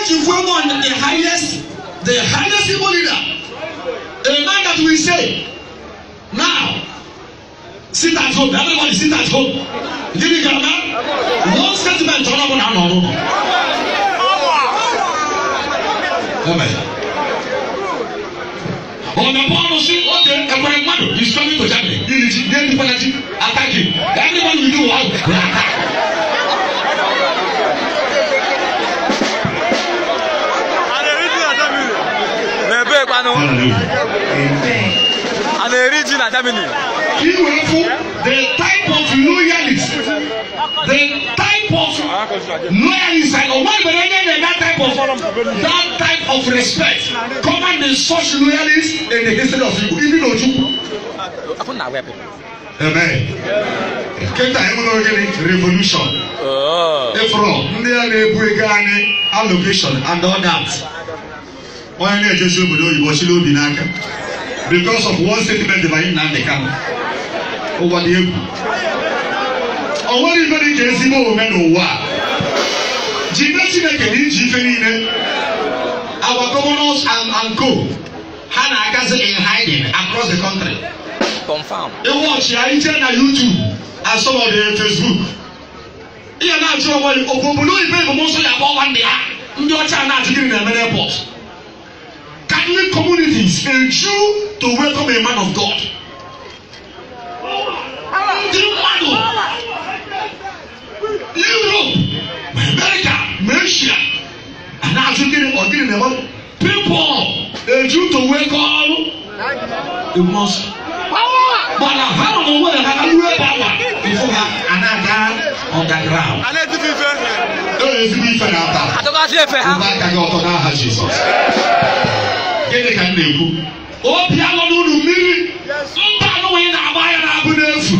Such is one on the highest, the highest civil leader. A man that we say, now, sit at home. Everybody sit at home. Did you get that? One statement, turn up on our own. Amen. ọ̀nà bọ́ọ̀lù sí ọ̀dẹ ẹ̀kọ́ ẹ̀gbọ́n is coming to germany yìí ni ti dé nípa náà ti attack him everybody will do well. And they reach in Germany. You the type of loyalist, the type of loyalist, and one better that type of that type of respect. Command the such loyalists in the history of you, even though you. Amen. Kenta emu na ogene revolution. Efro oh. ndị a na-ebu ego anyị allocation and all that onye na-ejezi obodo oyibo chiri obi n'aka because of one statement by Nnamdi Kanu ụwa dị egwu o nwere ife dị ka ezigbo omume n'ụwa jide chineke na iji ife niile our governors and, and co ha na-agazi in hiding across the country ịwọchi ya ije na YouTube and some of the Facebook ihe na-ajụ onwe obodo oyibo ebomụsọ ya akpọ nwanne ya ndị ọcha na-ajụ gịnị na-eme n'airport Catholic communities, a Jew to welcome a man of God. Europe, America, Asia, and African or Guinea level, people, a Jew to welcome a Muslim. But I have no way that I can wear power before her and I down on the ground. Don't let me feel that. I don't have to feel that. gịnị ka m na-ekwu obi alọ unu mmiri mba anụnwụ ị na-agba ya na-abụ n'efu